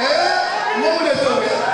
É? Uma mulher também.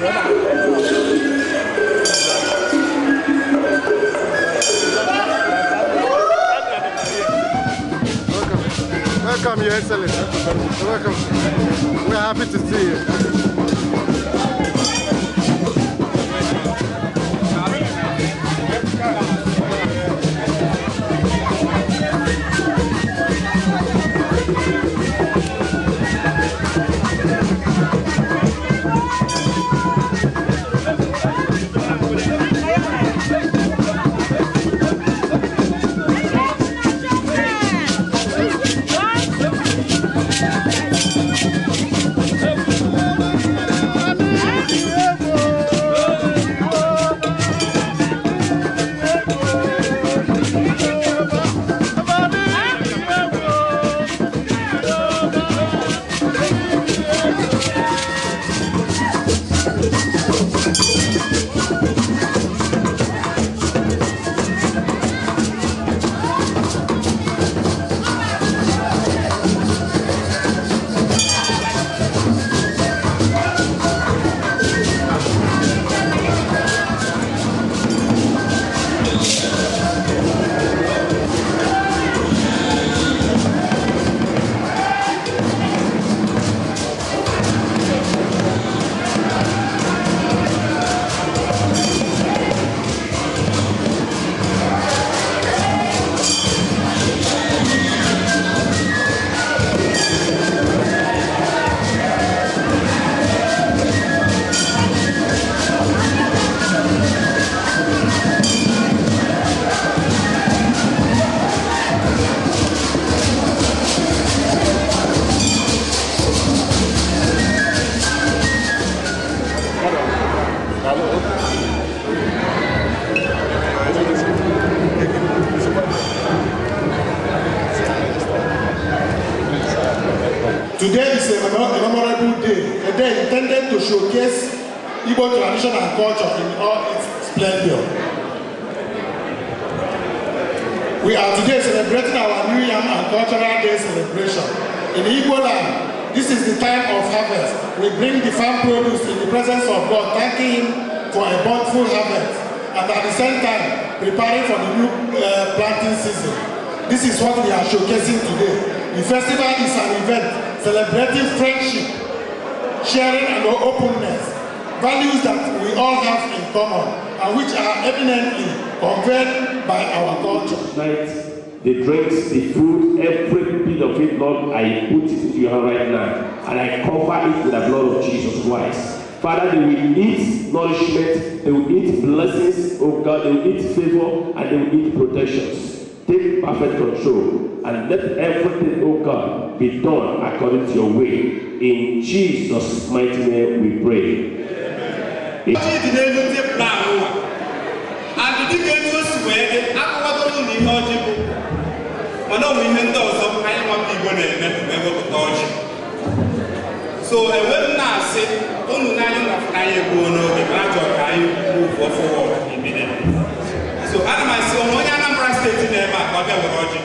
Welcome, Your Excellency. Welcome. We're happy to see you. We are today celebrating our New Yam and Cultural Day celebration. In Igbo land, this is the time of harvest. We bring the farm produce in the presence of God, thanking Him for a bountiful harvest, and at the same time, preparing for the new uh, planting season. This is what we are showcasing today. The festival is an event celebrating friendship, sharing and openness, values that we all have in common and which are eminently conveyed by our God, tonight The drinks, the food, every bit of it, Lord, I put it into your hand right now. And I cover it with the blood of Jesus Christ. Father, they will eat nourishment, they will eat blessings, oh God, they will eat favor, and they will eat protections. Take perfect control and let everything, oh God, be done according to your will. In Jesus' mighty name we pray. Amen. Amen. adịdịka etu o si wee dị ụlọ ihe ọjị bụ mana ọ bụ ihe ndị ọzọ anyị nwata igbo na-eme ewepụta ọjị so enwe m na-asị unu n'anya anyị egbuo n'oge ma ajọ ka anyị kwuo ụfọfọ so ana m asị onwe onye Anambra steeti na-eme a ka ọ bịa were ọjị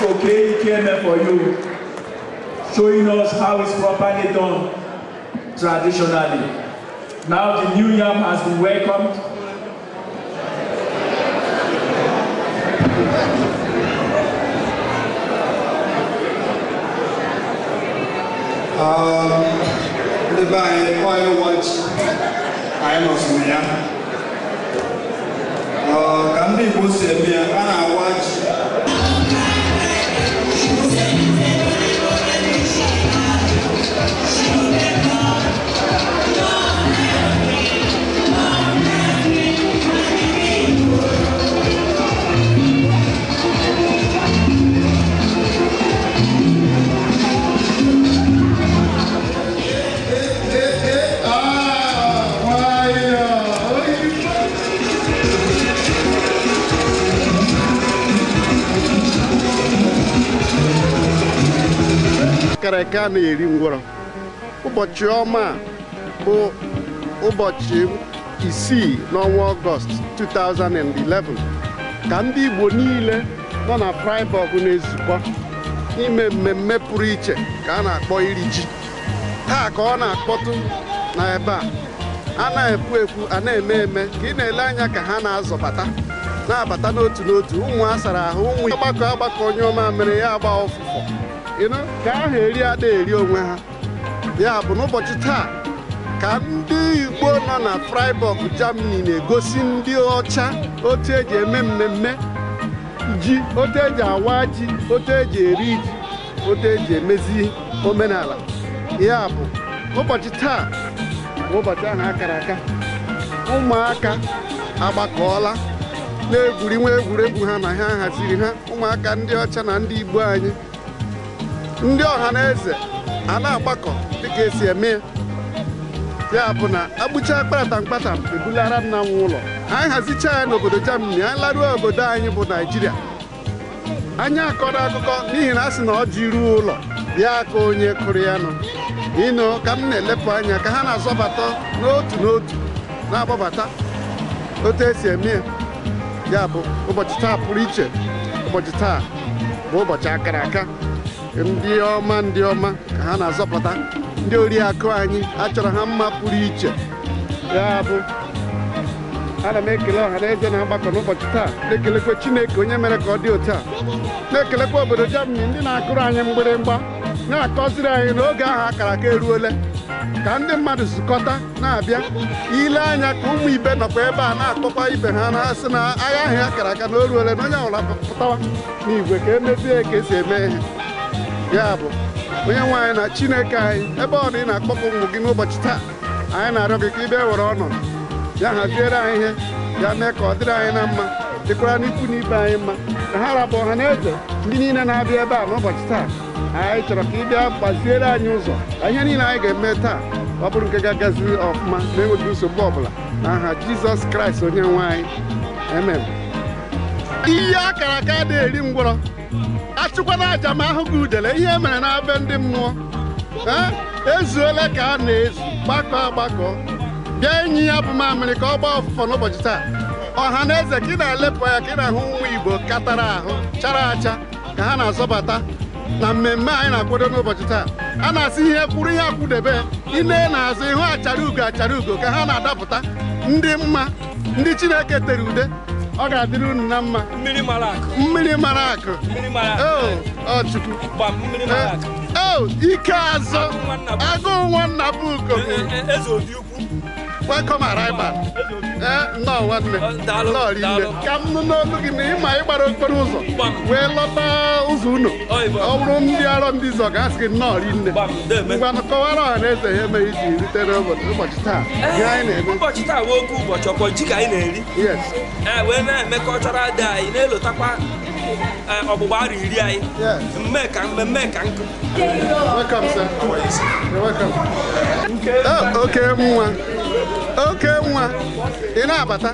Koke Ikeme for you, showing us how it's properly done traditionally. Now the new yam has been welcomed. Um, the by oil watch, I am not familiar. Uh, can be Muslim, and nke a na-eri ngwọrọ ụbọchị ọma bụ ụbọchị isii n'ọnwa ọgọst 2011 ka ndị Igbo niile nọ na Freiburg na-ezukọ ime mmemme pụrụ iche ka a na-akpọ iri ji taa ka ọ na-akpọtụ na ebe a a na-ekwu ekwu a na-eme eme ka ị na-ele anya ka ha na-azọbata na-abata n'otu n'otu ụmụ a sara ahụ ụmụ ọgbakọ agbakọ onye ọma mere ya agba ọfụfọ ka ahụ eri ada eri onwe ha ya bụ n'ụbọchị taa ka ndị igbo nọ na Freiburg Germany na-egosi ndị ọcha otu eji eme mmemme ji otu eji awa ji otu eji eri ji otu eji emezi omenala ya bụ ụbọchị taa ụbọchị ahụ akara aka ụmụaka agbakọọla na egwuregwu ha na ha haziri ha ụmụaka ndị ọcha na ndị igbo anyị ndị ọha na eze a na-agbakọ dịka esi eme ya bụ na agbụcha kpatam kpatam ebulara nna m ụlọ anyị hazicha ya n'obodo Germany anyị laruo obodo anyị bụ Naijiria anyị akọrọ akụkọ n'ihi na a sị na ọ ji ruo ụlọ bịa ka onye kụrụ ya nọ ịnụ ka m na-elepụ anya ka ha na-azọbata n'otu n'otu na-agbabata otu esi eme ya bụ ụbọchị taa pụrụ iche ụbọchị taa bụ ụbọchị akara aka ndị ọma ndị ọma ka ha na-azọpụta ndị oriakụ anyị achọrọ ha mma pụrụ iche ya bụ ana m ekele ọha na eze na mgbakọ n'ụbọchị taa na-ekelekwa chineke onye mere ka ọ dị otu a na-ekelekwa obodo jamani ndị na-akụrụ anyị mgbịrịmgba na-akọziri anyị n'oge ahụ akara aka eruole ka ndị mmadụ zukọta na-abịa ile anya ka ụmụ ibe nọkwa ebe a na-akpọkwa ibe ha na-asị na agha ahụ akara aka na o ruole na onye ọbụla pụtawa n'igwe ka emezie ka esi eme ihe ya bụ onye nwe anyị na chineke anyị ebe ọ na ị na-akpọpụ ụmụ gị n'ụbọchị taa anyị na-arịọ gị ka ị bịa were ọnọdụ ya haziere anyị ihe ya mee ka ọ dịrị anyị na mma dịkwara n'ikwu na ibe anyị mma ka ha rapụ ọha na eze ndị niile na-abịa ebe a n'ụbọchị taa anyị chọrọ ka ị bịa gbaziere anyị ụzọ ihe niile anyị ga-eme taa ọ bụrụ nke ga-agazi ọfụma na-enweghị nsogbu ọbụla aha jizọs kraịst onye nwe anyị amen ihe akara aka na-eri ngwọrọ achụkwana aja ma ahụ gị udele ihe mere na abe ndị mmụọ ezuola ka a na-ezu gbakọ agbakọ bịa enyi ya bụ mamịrị ka ọ gbaa ọfụfọ n'ụbọchị taa ọha na eze ka ị na-elepụ ya ka ị na-ahụ nwa igbo katara ahụ chara acha ka ha na-azọbata na mmemme anyị na-akwado n'ụbọchị taa a na-asị ihe kwuru ihe akwụdebe ine na-azụ ihu achara ugo achara ugo ka ha na-adapụta ndị mma ndị chineke tere ude ọ ga-adịrị unu na mma mmiri mara akụ oh, Chukwu eh, oh, ike azụ agụụ nwanna bụ welcome arrival nnọọ nwanne nnọọ rinne ka m nụ n'olu gị na ịma ịgbara okporo ụzọ wee lọta ụzọ unu ọ bụrụ ndị arọ ndị zọ ga-asị gị nnọọ rinne ngwanụ kọwara ọha na eze ha emeghị iji ritere ụbọchị taa ụbọchị taa wee oke ụbọchị ọkpọ ji ka anyị na-eri wee na-eme kọlchọral dị anyị na-elotakwa ọgbụgba arụ iri anyị mme ka mmemme ka nkụ oke nwa oke nwa ị na-abata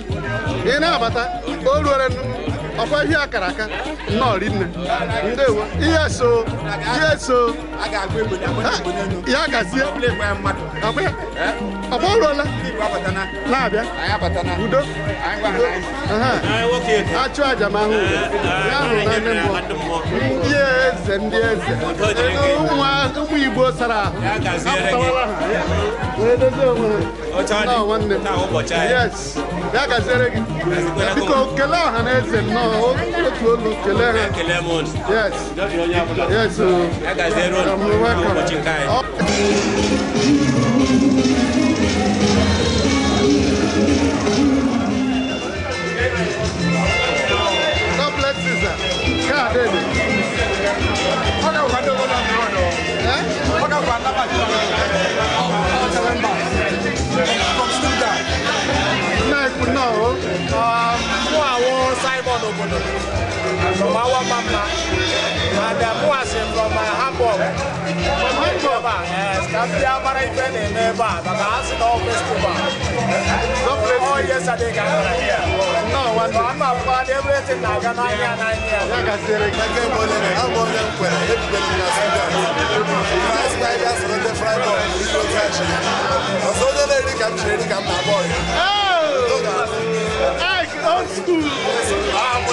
ị na-abata o nnukwu. ọkwa ihe akara aka nnọọ ndewo ihe so ihe so ya gazie ọkpa ọrụọla na-abịa udo achụ aja ma ahụ ya hụrụ mmụọ ndị eze ndị eze ụmụ igbo sara ahụ ha bịa gaziere gị biko kele ọha na eze nnọọ otu olu kele ha yes yes o oh. welcome Mawa Mama, Madam Muasin from uh, Hamburg. From Hamburg, yes. Kafia Maraipen in Neba, the Masin of Festival. Oh, yesterday, Ghana here. No, one time I've everything now, Ghana here and here. Like I said, I can't believe it. I'm going to put it in the Sudan. Spiders on the fry ball, we go trash. So the lady come, she come, my boy. Oh! Hey, old school!